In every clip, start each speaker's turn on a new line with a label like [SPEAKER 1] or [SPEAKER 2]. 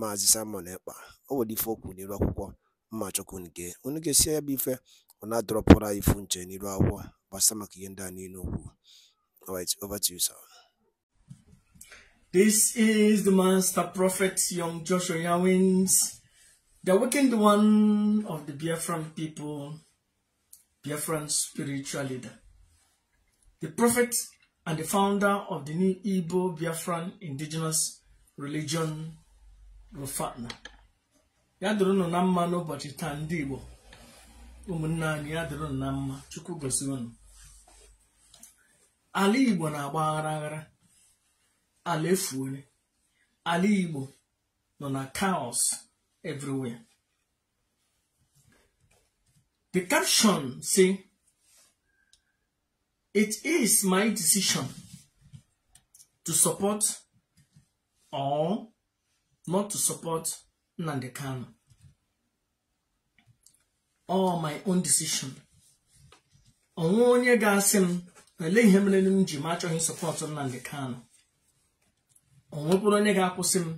[SPEAKER 1] Maazị Simon Ekpa akwụkwọ mma unu ya bụ ife ifu nche n'iru akwụkwọ gbasa maka ihe ndị a niile okwu over to you sir
[SPEAKER 2] This is the master prophet, young Joshua Yawins, the wicked one of the Biafran people, Biafran spiritual leader, the prophet and the founder of the new Igbo Biafran indigenous religion Rufana ya dụrụ unu na mma n'ụbọchị taa ndị Igbo ụmụnne anyị ya dụrụ na mma Chukwu gosi unu ala Igbo na-agba aghara aghara ala efuole ala Igbo nọ na kaos everywhere the caption say it is my decision to support or not to support Nnamdi Kanu. All my own decision. Onwe onye ga-asị m ele ihe mere m ji ma achọghị support Nnamdi Kanu. Onwekwuru onye ga-akwụsị m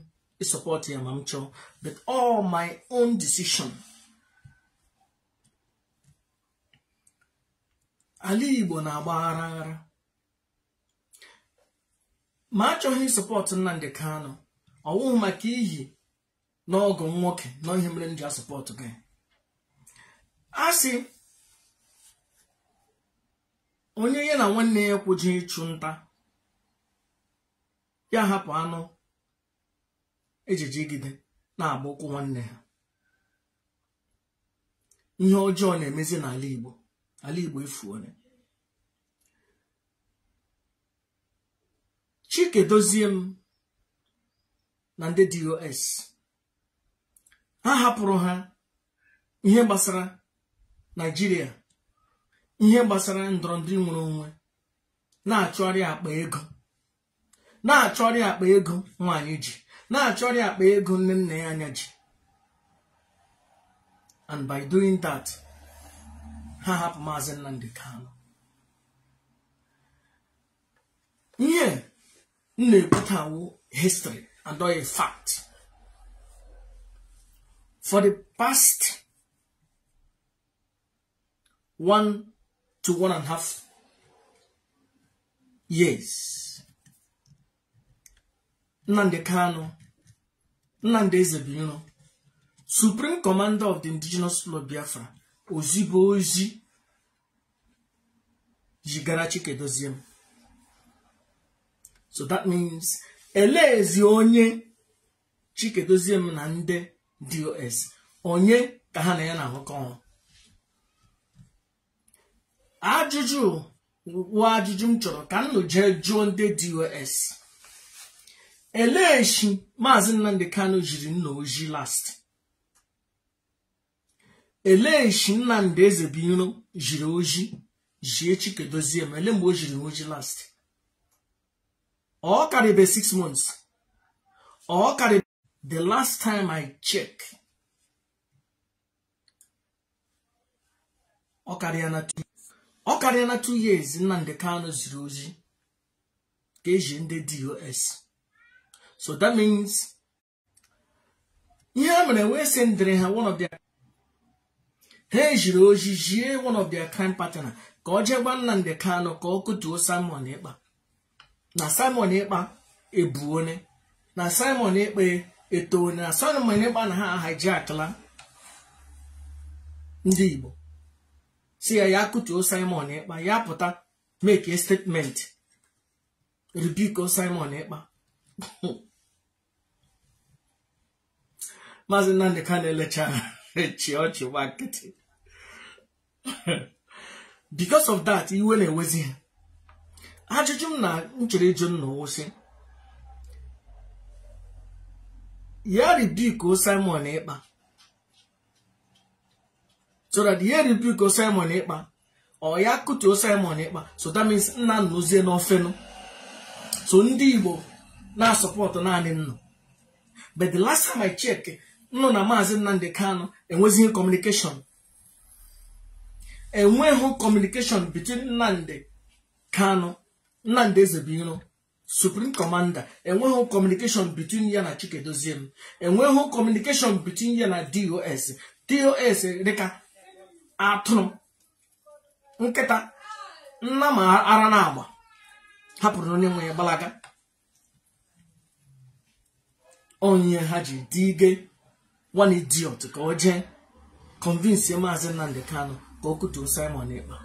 [SPEAKER 2] ịsọpọt ya ma m chọọ but all my own decision. Ala Igbo na-agba aghara ma achọghị support Nnamdi Kanu ọwụghị maka iyi n'ọgụ nwoke na mere m asọpọtụ gị a sị onye ya na nwanne ya kwụji ịchụ nta ya hapụ anụ ejijigide na-agba ụkwụ nwanne ha ihe ọjọọ na-emezi n'ala Igbo ala Igbo efuole. Chike dozie m na ndị dos ha hapụrụ ha ihe gbasara naijiria ihe gbasara ndọrọndọrọ nwere onwe na-achọrị akpa ego na-achọrị akpa ego nwaanyị ji na-achọrị akpa ego nne nna ya anya ji and by doing that ha hapụ maazị Nnamdi Kanu ihe m na-ekwutawo histrị and not a fact. For the past one to one and a half years, Nande Kano, Nande Zebino, Supreme Commander of the Indigenous Lord Biafra, Ozibo ozi jigara Chikedozie. So that means eleezi onye chikedozie m na ndị dos onye ka ha na ya na-ahụkọ ọrụ ajụjụ wụ ajụjụ m chọrọ ka m jee jụọ ndị dos eleeshi maazị nnamdị Kano jiri nna oji last eleeshi nnamdị ezebiro jiri oji jie chikedozie m ele mgbe o jiri oji last ọ karịbe six months ọ karịbe the last time I check ọ karịa na two ọ karịa na two years Nnamdi Kano ziri ozi ka eji ndị DOS so that means ihe a mere wee sị ndịrị ha one of their ha ejiri ozi jie one of their crime partner ka ọ jee gwa Nnamdi Kano ka ọ kụtuo Simon Ekpa na simon ịkpa ebuone na simon ikpe etoone na simon ịkpa na ha hijakla ndị igbo si ya ya kụtuo simon ịkpa ya pụta make a statement ribiko simon ịkpa maazị nnamdị ka na-elecha chi ọchị nwa because of that iwe na-ewezi ha ajụjụ m na nchere ịjụ nna wụsị ya ribuko Simon ịkpa so that ya ribuko Simon ịkpa ọ ya kụtuo Simon ịkpa so that means nna nnụzie n'ofenụ so ndị Igbo na-asọpọtụ naanị nnụ but the last time I check nnụ na maazị Nnamdi Kanu enwezighị communication enweghị communication between Nnamdi Kanu Nnamdi Ezebiro supreme commander enweghị communication between ya na Chikedozie m enweghị communication between ya na DOS DOS dịka atụrụ nkịta nna ma ara na agba hapụrụ onye nwe ya gbalaga onye ha ji dị one idiot ka o jee convince maazị Nnamdi kano ka o kutuo Simon Ekpa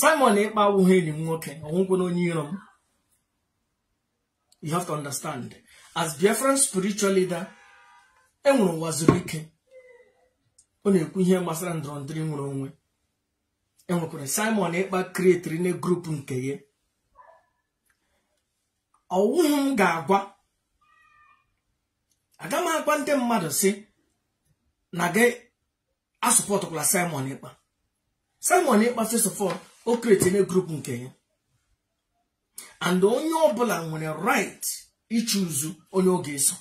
[SPEAKER 2] Simon Ekpa awụghị enyi m nwoke ọgwụgwụ onye iro m you have as Biafran spiritual leader enwere ụwa zuru ike ọ na-ekwu ihe gbasara ndịrị nwere onwe enwekwara Simon Ekpa kreetiri na grup nke ya ọwụghị m ga-agwa aga m agwa ndị mmadụ si na gị asụpọtụkwala Simon Simon Ekpa first o kretinye grupu nke ya and onye ọbụla nwere right ichuzu onye oge ga-eso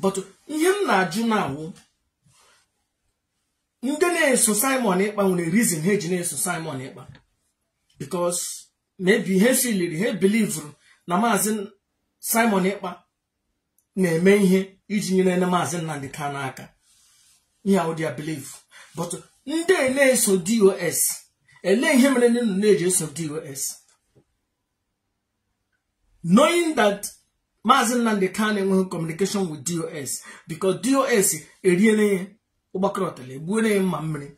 [SPEAKER 2] but ihe m na-ajụ na-awụ ndị na-eso Simon Ịkpa nwere reason ha eji na-eso Simon Ịkpa because maybe ha filiri ha bilivuru na maazị Simon Ịkpa na-eme ihe iji nyere na maazị Nnamdi Kanu n'aka. ihe but ndị na-eso dos ele ihe mere nne na eji of dos knowing that maazi nnamdị kan enweghị communication with dos because dos eriele ya ụgbakọrọ ọtala egbuole ya mma mmiri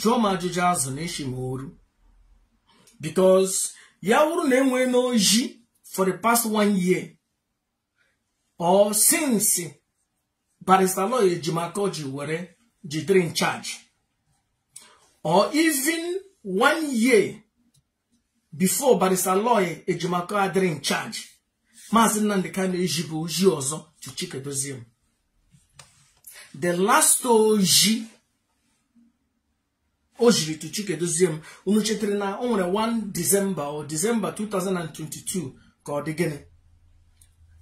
[SPEAKER 2] jụọ m ajụjụ azụ na eshi m oru because ya wụrụ na enwee n'oji for the past one year or since Barista lawyer ejimakọ ji were the three charge or even one year before Barrister Lawyer Ejimako eh, adịrị charge Maazị Nnamdi Kanu ejibu oji ọzọ to Chike Doziem the last oji o jiri to Chike Doziem unu chetara na o nwere 1 December or December 2022 ka ọ dị gịnị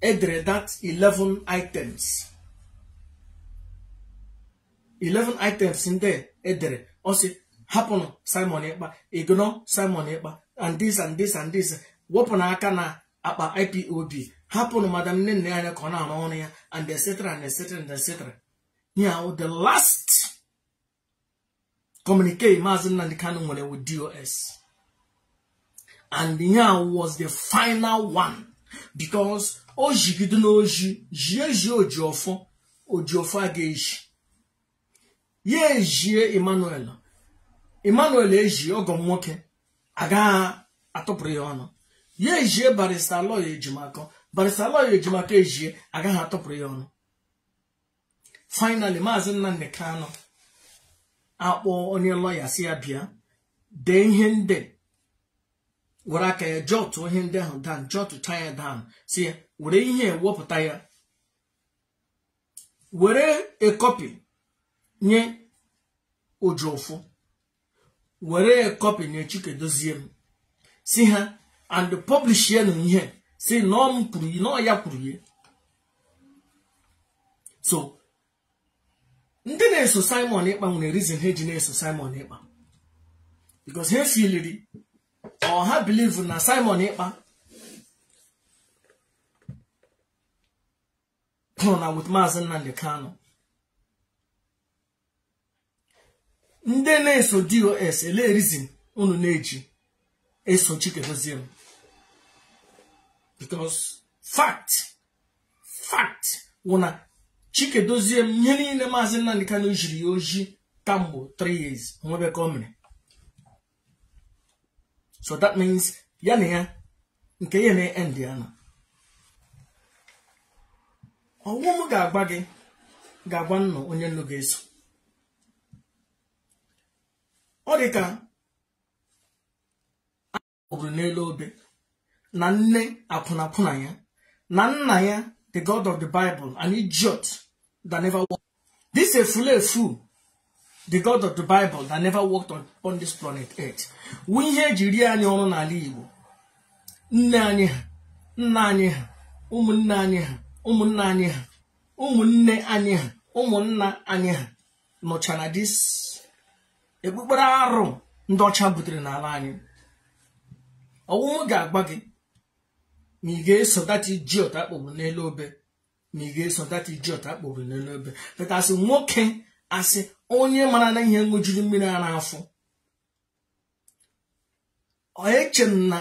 [SPEAKER 2] edere that 11 items 11 items ndị edere eh, osi hapụnụ simon ịkpa ignore simon ịkpa and this and this and this wepụna aka na akpa ipob hapụnụ madam nne nne anya ka ọ na-arụ ọrụ ya and etc and etc and etc ya oh, the last communicate maazị Nnamdi Kano nwere with dos and ya oh, was the final one because o oh, jigide n'oji jie ji ojiọfọ ojiọfọ a ga-eji ya ejie emmanuel emmanuel ejie ọgọ nwoke agaghị atụpụrụ ya ọnụ ya ejie barista lọya ejimakọ barista lọya ejimakọ ejie agaghị atụpụrụ ya ọnụ finally maazị nnamdị kanụ akpọ onye lọya si ya bịa dee ihe ndị were aka ya jọtụ ihe ndị ahụ dan jọtụcha ya dan si ya were ihe wepụta ya were ekọpi nye ụjụfụ were kọpị nye chikedozie m si ha and publish na ihe si nọ m kwuru nọ ya kwuru ya so ndị na-eso Simon ịkpa nwere reason ha ji na-eso Simon ịkpa because ha filiri ọ ha believe na Simon ịkpa nọ na with Maazị nnamdị kano ndị na-eso dos ele rizin unu na-eji eso chikedozie m because fact fact wụ na chikedozie m ihe niile maazị ka Kanu jiri ya oji kamgbe 3 years nwebe ka so that means ya na ya nke ya na-end ya nọ ọnwụ m ga-agba gị ga-agba nnọọ onye nnu ga-eso ọ dị ka agbụrụ n'elu obe na nne akwụnakwụna ya na nna ya the god of the bible an idiot that never walked this a efu the god of the bible that never walked on, on this planet earth wu ihe eji rie anyị ọrụ n'ala igbo nne anyị ha nna anyị ha ụmụnne anyị ha nna anyị ha ụmụnne anyị ha ụmụnna anyị ha nọchara na ekpukpere arụ ndị ọcha butere n'ala anyị ọwụwa ga-agba gị ma ị ga-eso dati ji ọta kpọgburu n'elu obe ma ị ga-eso dati ji ọta kpọgburu n'elu obe petasị nwoke asị onye mara na ihe ṅụjuru mmiri a n'afọ eche m na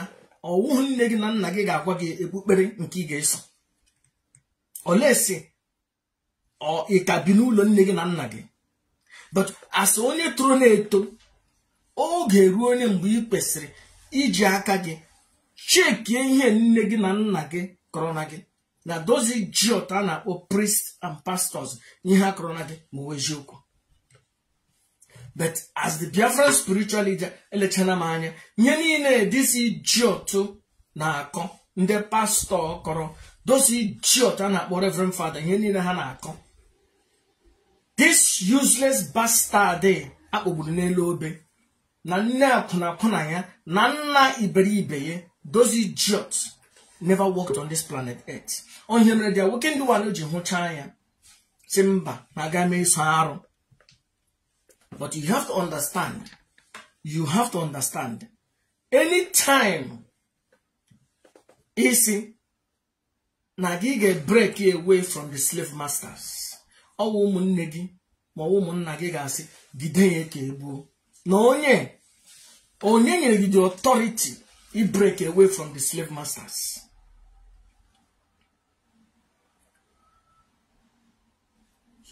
[SPEAKER 2] ọwụhụ nne gị na nna gị ga-agwa gị ekpukpere nke ị ga-eso oleesi ị ka bi n'ụlọ nne gị na nna gị but as onye toro na-eto oge ruo onye mgbe ị kwesịrị iji aka gị chekie ihe nne gị na nna gị kọrọ na gị na dozi jiọt a na-akpọ priest and pastors n'ihe a kọrọ na gị ma wezie eziokwu but as the Biafran spiritual leader elechana m anya ihe niile dịsi jiọt na-akọ ndị pastọ kọrọ dozi jiọt a na-akpọ reverend father ihe niile ha na-akọ this useless bastard eh, a kpọgburu n'elu obe na nne akwụnakwụna ya na nna iberibe ya those idiots never worked on this planet earth onye mere dia nwoke ndị wano ji hụchaa ya si mba na aga m eso arụ but you have to understand you have to understand anytime isi na gị ga-break away from the slave masters ọwụ ụmụnne gị ma ọwụ ụmụnna gị ga-asị gide ya ka egbuo na onye onye nyere gị the authority i break away from the slave masters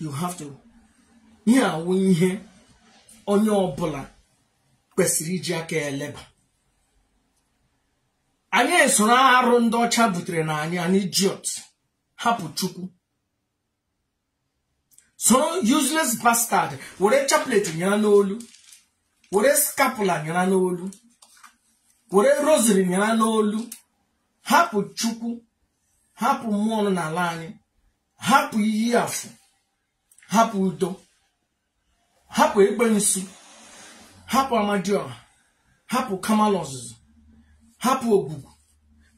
[SPEAKER 2] you have to ihe awụ ihe onye ọbụla kwesịrị iji aka eleba anyị soro arụ ndị ọcha butere na anyị anyị jiot hapụ chukwu so useless bastard were chaplet nyara n'olu were scapula nyara n'olu were rosary nyara n'olu hapụ chukwu hapụ mmụọ nọ n'ala anyị hapụ iyi afụ hapụ udo hapụ egbe nsu hapụ amadioha hapụ kamal ọzụzụ hapụ ogbugu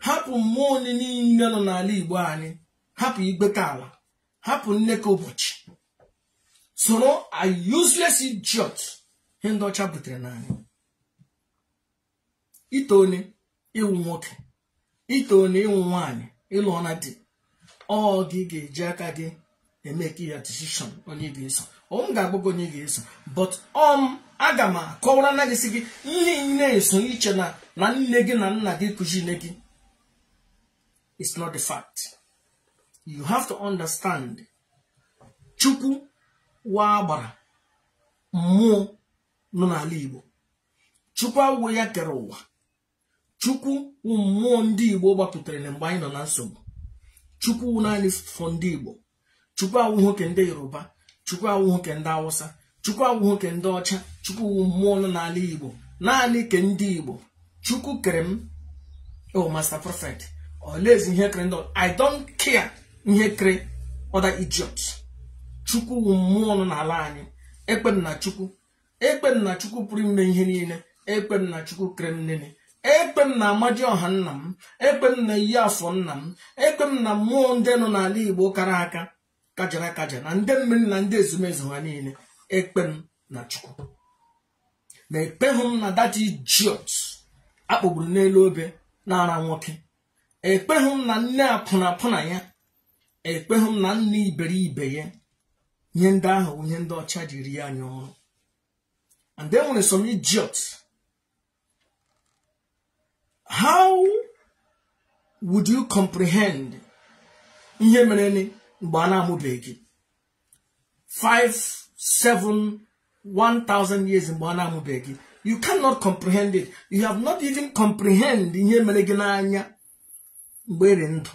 [SPEAKER 2] hapụ mmụọ niile nọ n'ala igbo anyị hapụ igbeta ala hapụ nneka ụbọchị soro a useless idiot ihe ndị ọcha butere n'anya ite onye ịwụ nwoke ite onye ịwụ nwaanyị ịlụ ọna ọ gị ga-eji aka gị emeke ya decision onye ga-eso m ga-agbago onye ga-eso but ọm um, aga m akọwara na gị si gị ihe na-eso iche na nne gị na nna gị kụzi gị it's not the fact you have to understand chukwu wa agbara mmụọ nọ n'ala igbo chukwu agwụ ya kere ụwa chukwu mmụọ ndị igbo gbapụtara na mgbe anyị nọ na nsogbu chukwu naanị fọ ndị igbo chukwu awụ nwoke ndị yoruba chukwu awụ nwoke ndị awụsa chukwu awụ nwoke ndị ọcha chukwu mmụọ nọ n'ala igbo naanị ke ndị igbo chukwu kere m o oh, masta prọfet ọlaezi ihe kere ndị i don't care ihe kere ọda idiot chukwu wụ mmụọ nọ n'ala anyị ekpe na chukwu na chukwu pụrụ ime ihe niile ekpe na chukwu kere m nene na amaji ọha nna m ekpe na iyi afọ nna m ekpe na mmụọ ndị nọ n'ala igbo kara aka kajara akaja na ndị mmiri na ndị ezumezu ha niile ekpem na chukwu Ma ekpeghị m na dati jiot akpọgburu n'elu obe n'ara nwoke ekpehụ m na nne apụnapụna ya ekpehụ m na nne iberibe ya nye ndị ahụ onye ndị ọcha jiri ya anya ọrụ and then nwere some idiot how would you comprehend ihe mere ni mgbe a na-amụbeghị 5 7 1000 years mgbe a na-amụbeghị you cannot comprehend it you have not even comprehend ihe mere gị n'anya mgbe eri ndụ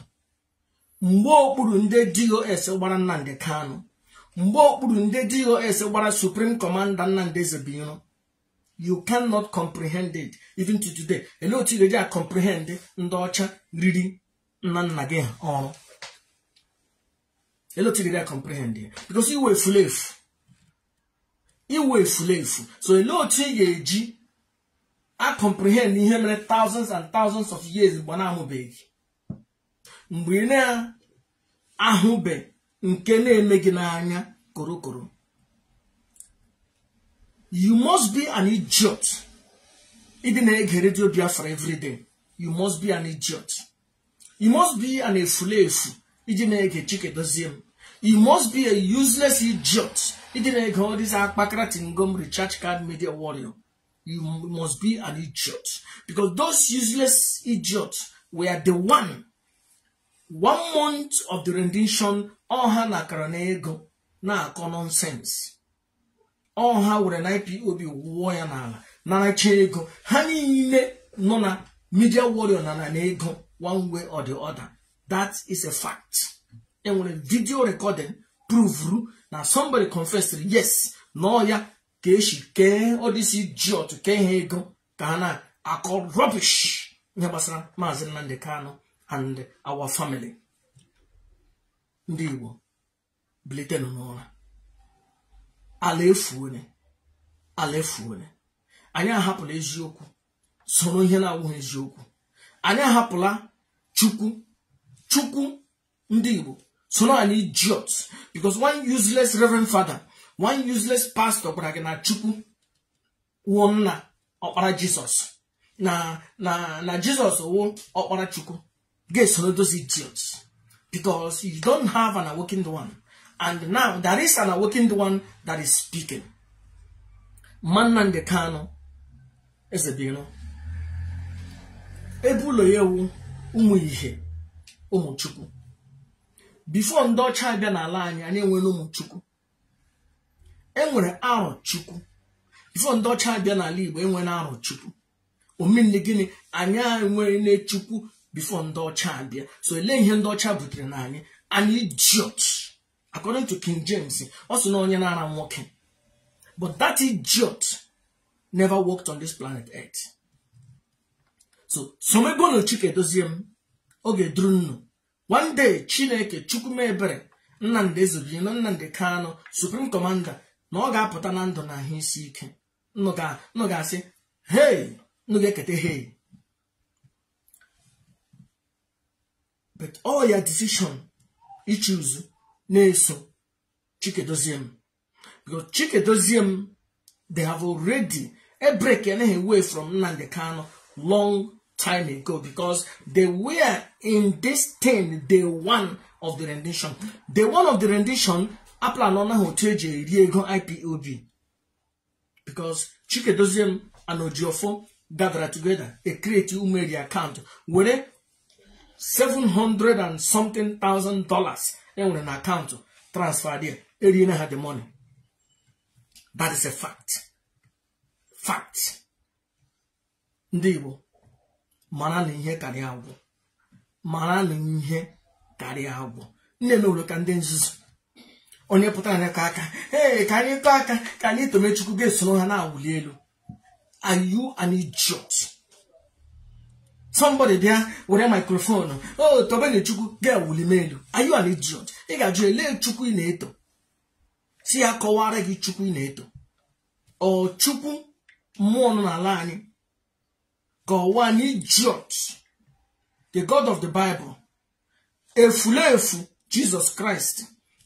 [SPEAKER 2] mgbe okpuru ndị dos gbara Nnamdi Kanu mgbe okpuru ndị dos gbara supreme commander nnamdị ezebinyo you cannot comprehend it even to today ele otu ga-eji a comprehend ndị ọcha riri nna nna gị ọrụ ele otu ga-eji a comprehend ya because iwe efulefu iwe efulefu so ele otu ị ga-eji a comprehend ihe mere thousands and thousands of years gba na-amụbeghị mgbe ị na-ahụbeghị nke na-eme gị n'anya korokoro you must be an idiot ịdị na-ege redio biafra everyday you must be an idiot you must be an efulefu iji na-ege chike dozie m you must be a useless idiot ịdị na-ege all these akpakara tingom recharge card media warrior you must be an idiot because those useless idiots were the one one month of the rendition ọha na akara na ego na-akọ nọnsensị ọha were na IPOB wụọ ya n'ala na naracha ego ha niile nọ na media warrior na na ego one way or the other that is a fact enwere video recording provuru na somebody confessed yes na ya ka esi kee ọdịsi kee ha ego ka ha na-akọ rubbish ihe gbasara maazị Nnamdi Kanu and our family ndị Igbo bilitenụ n'ụra ala efuone ala efuone anyị ahapụla eziokwu soro ihe na-awụghị eziokwu anyị ahapụla chukwu chukwu ndị Igbo soro anyị idiot because one useless reverend father one useless pastor gwara gị na chukwu wụọ nna ọkpara jizọs na na na jizọs wụ ọkpara chukwu ga-esoro dozi because you don't have an awakened one. And now there is an awakened one that is speaking. Mannande Kano is a deal. Ebulo yewu umu ihe ụmụ chukwu. Before ndị ọcha abịa n'ala anyị anyị enwere ụmụ chukwu. Enwere arọ chukwu. Before ndị ọcha abịa n'ala Igbo enwere arọ chukwu. omenne gịnị anyị enwere nne chukwu bifo ndị ọcha abịa so ele ihe ndị ọcha butere na anyị an idiot according to King James ọ sị na onye na-ara nwoke but that idiot never worked on this planet earth so somebonu chike dozie m oge duru nnu one day chineke chukwumebere nnamdị ezebiri na nnamdị kanụ supreme commander na ọ ga-apụta na ndụ na ahụ isi ike nụ asị hei nụ eketa hei but all your decision you choose na-eso Chikadoziem because Chikadoziem they have already a break and a from Nnamdi Kanu long time ago because they were in this thing day one of the rendition day one of the rendition aplanọ na otu eji eri ego IPOB because Chikadoziem and Ojiofo gathered together e create Umeri account were 700 and something thousand dollars enwere na akaụntụ transfer there eriene ha the money that is a fact fact ndị Igbo mara na ihe karịa agwụ mara na ihe karịa agwụ nne na ụlọ ka ndị nzuzu onye pụtara na aka ee ka anyị aka ka anyị tomechukwu ga-esoro ha na-awụli elu are you an idiot somebody there with a microphone oh tobene chukwu girl will email are you an idiot ị ga-ajụ ele chukwu ị na-eto si ya kọwara gị chukwu ị na-eto ọ chukwu mmụọ nọ n'ala anyị ka ọwa an idiot the god of the bible efulefu jesus christ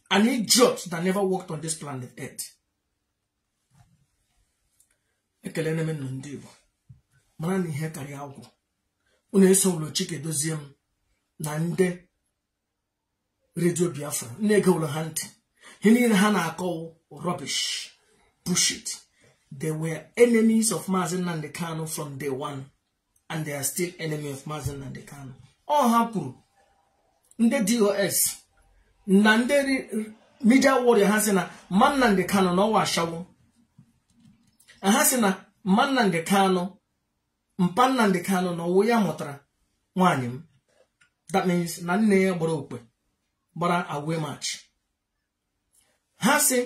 [SPEAKER 2] an idiot that never walked on this planet earth ekele na ndị Igbo mara na ihe karịa agwụ unu eso ụlọchike dozie m na ndị redio biafra ndi ege ụlọ ha ntị ihe niile ha na-akọwụ rubbish bullshit they were enemies of maazi Nnamdi Kano from day one and they are still enemy of maazi Nnamdi Kano ọ ha kwuru ndị dos na ndị media warrior ha si na mmanna Ndi Kano na ọwa ashawo ha si na mmanna Ndi Kano. mpa kano kanụ na ọwụ ya mụtara nwaanyị m that means na nne ya gbara okpe gbara agwe maachị ha si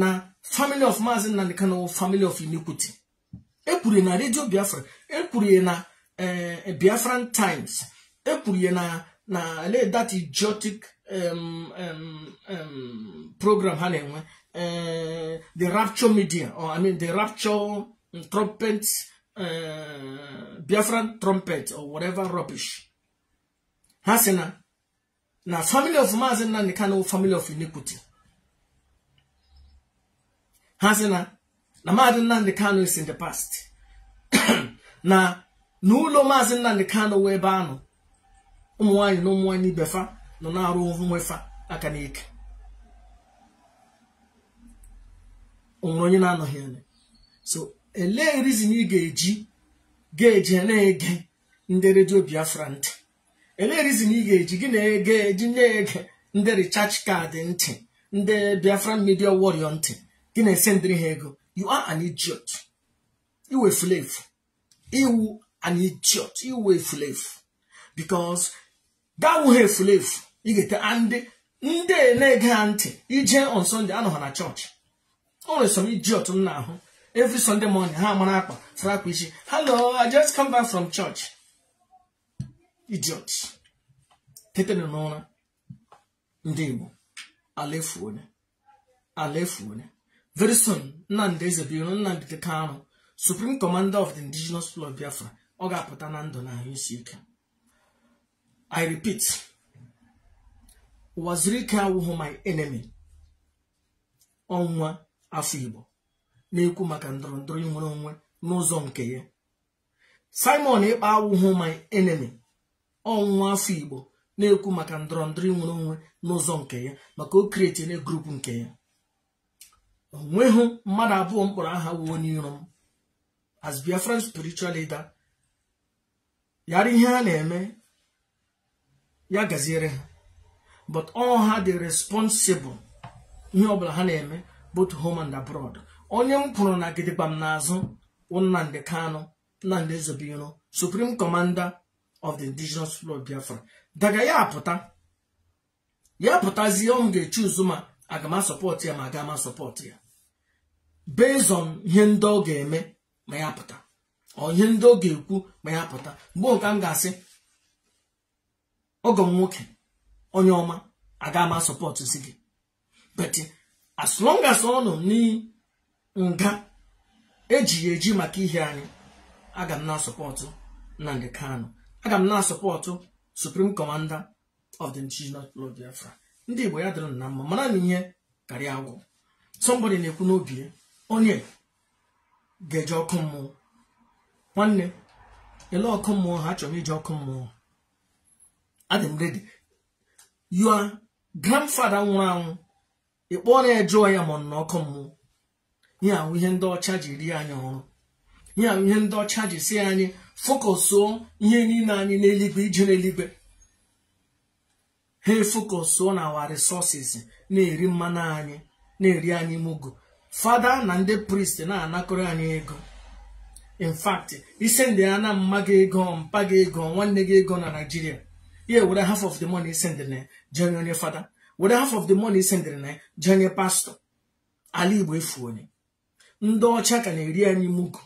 [SPEAKER 2] na family of maazị nnamdị wụ family of iniquity ekwuru na redio biafra ekwuru na eh, eh, biafran times ekwuru na na that idiotic program ha na-enwe eh, the rapture media or i mean the rapture trumpets Uh, Biafran trumpet or whatever rubbish ha sị na na family of Maazị Nnamdi Kanu family of iniquity ha sị na na Maazị Nnamdi Kanu is in the past na n'ụlọ Maazị Nnamdi Kanu wee ebe anụ ụmụ nwanyị na ụmụ nwaanyị na nọ na-arụ nwefa aka n'ike o nwere onye na-anọghị anya so elee rizin ị ga-eji ga-eji na-ege ndị redio biafra ntị elee rizin ị ga-eji gị na-ege eji na-ege ndị richarge kaadị ntị ndị biafra media warrior ntị gị na ndịrị ha ego you are an idiot iwe fulefu iwu an idiot iwe fulefu because dawuhe efulefu ị ga-ete ndị ndị na-ege ha ntị ije on Sunday anọ ha na chọọchị o nwere som idiot m na-ahụ every sunday morning ha mara akpa sara akpa isi hello i just come back from church idiot tetere n'ụra ndị igbo alefuone alefuone very soon nnamdị eze biro nnamdị arụ supreme commander of the indigenous club biafra ọ ga-apụta na ndụ na ahụ isi ike i repeat ụwa ike my enemy ọnwa afọ igbo na-ekwu maka ndọrọ ndọrọ inwere onwe n'ụzọ nke ya simon ịkpa awụhụ my enemy ọnwụnwa afọ igbo na-ekwu maka ndọrọ ndọrọ inwere onwe n'ụzọ nke ya maka o na grupu nke ya onweghị mmadụ abụọ mkpọrọ aha wuo n'iro m as biafra spiritual leader yara ihe ha na-eme ya gaziere ha but all ha dị responsible ihe ọbụla ha na-eme both home and abroad onye m pụrụ na gidigba m n'azụ bụ Nnamdị Kanụ Nnamdị Ezubiro Supreme Commander of the Indigenous People of Biafra daga ya apụta ya pụtazie ọ m ga-echi ụzụ ma aga m ya ma aga m ya based on ihe ndị ọ ga-eme ma ya pụta ọ ihe ndị ọ ga-ekwu ma ya pụta mgbe nke m ga-asị ọgọ m nwoke onye ọma aga m si gị as long as ọ nọ n'iyi nga eji ya eji maka ihe anyị aga m na-asọpọtụ Nnamdi Kanu aga m na-asọpọtụ Supreme Commander of the indigenous people Biafra ndị Igbo ya dịrị na mma mara na ihe karịa agwụ somebody na-ekwu n'obi ya onye ga-eje ọkụ mmụọ nwanne ele ọkụ mmụọ ha chọrọ ije ọkụ mmụọ adị m redi nwụrụ anwụ ị na ya jụọ ya ma ọ nọ ọkụ mmụọ ihe ahụ ihe ndị ọcha ji rie anyị ọrụ ihe ahụ ihe ndị ọcha ji si anyị fokọsụọ ihe niile anyị n'eluigwe ije n'eluigwe ha efokọsụọ na awa resources na-eri mmanụ anyị na-eri anyị mugu fada na ndị prist na-anakọrọ anyị ego in fact isi ndị ya mma gị ego mpa gị ego nwanne gị ego na Nigeria ya were half of the money isendịrị na jenye onye fada were half of the money isendịrị na jenye pastọ ala Igbo efu onye ndị ọcha ka na-eri anyị mugu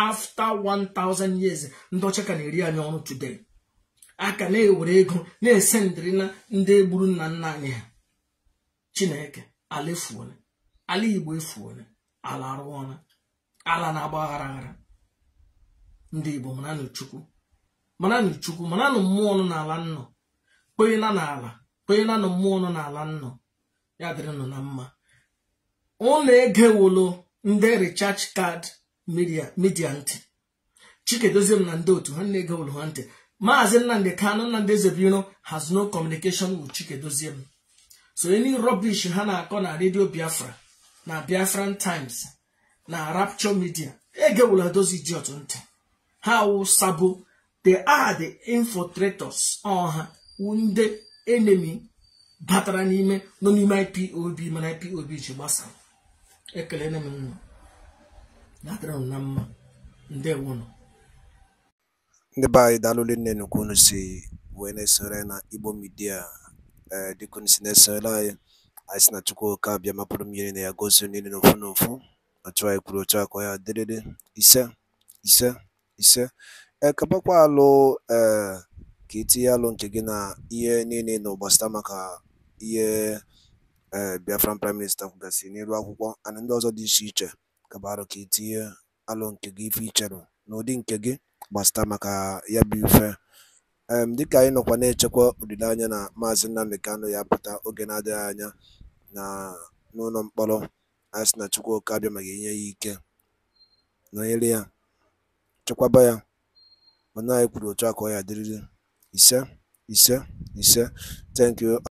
[SPEAKER 2] afta 1000 years ndị ọcha ka na-eri anyị ọrụ today a ka na-ewere ego na-ese ndịrị na ndị egburu nna nna anyị ha chineke ala efuole ala igbo efuole ala arụọla ala na-agba aghara aghara ndị igbo maranụ chukwu maranụ chukwu maranụ mmụọ nọ n'ala nnọ kpeela n'ala na mmụọ n'ala nnọ ya nọ na mma ụlọ egewolo ndị richarge card midia ntị chikedoziem na ndị otu ha na-ege ha ntị maazị nnamdị kanụ nnamdị ezebiro has no communication with chikedoziem so any rubbish ha na-akọ na redio biafra na biafran times na rapture media egewula dozi otu ntị ha wụ the they are the infiltrators ọha wunde enemi batara n'ime nọ n'ime ipob mana ipob ji gbasa ekelena m nwa na-adịrị m na mma ndewo nọ
[SPEAKER 1] ndị be anyị daalụli nne nnukwu unu si wee na-esore na igbo midia ee eh, dịka unu si na-esore anyị anyị si na chukwu oke abịa mapụrụ mmiri na ya gozie niile n'ofu n'ofu ọchụ anyị kwuru ochu akọ ya dịrịrị ise ise ise ekebakwa alụ ee eh, ka itinye alụ nke gị na ihe niile na ụgbasịta maka ihe ee eh, Biafran Praịm Minista kwugasịrị n'elu akwụkwọ and ndị ọzọ dị iche iche kabarụ ka itinye alụ nke gị ife icherụ n'ụdị nke gị gbasata maka ya bụ ife dịka anyị nọkwa na-echekwa olileanya na maazị Nnamdi Kano ya pụta oge na-adịghị anya na n'ụlọ mkpọrọ a sị na Chukwuka abịa ma ga-enye ya ike nọnyere ya chekwaba ya mana anyị kwuru otu a ka ọ ya dịrịrị ise ise ise thank you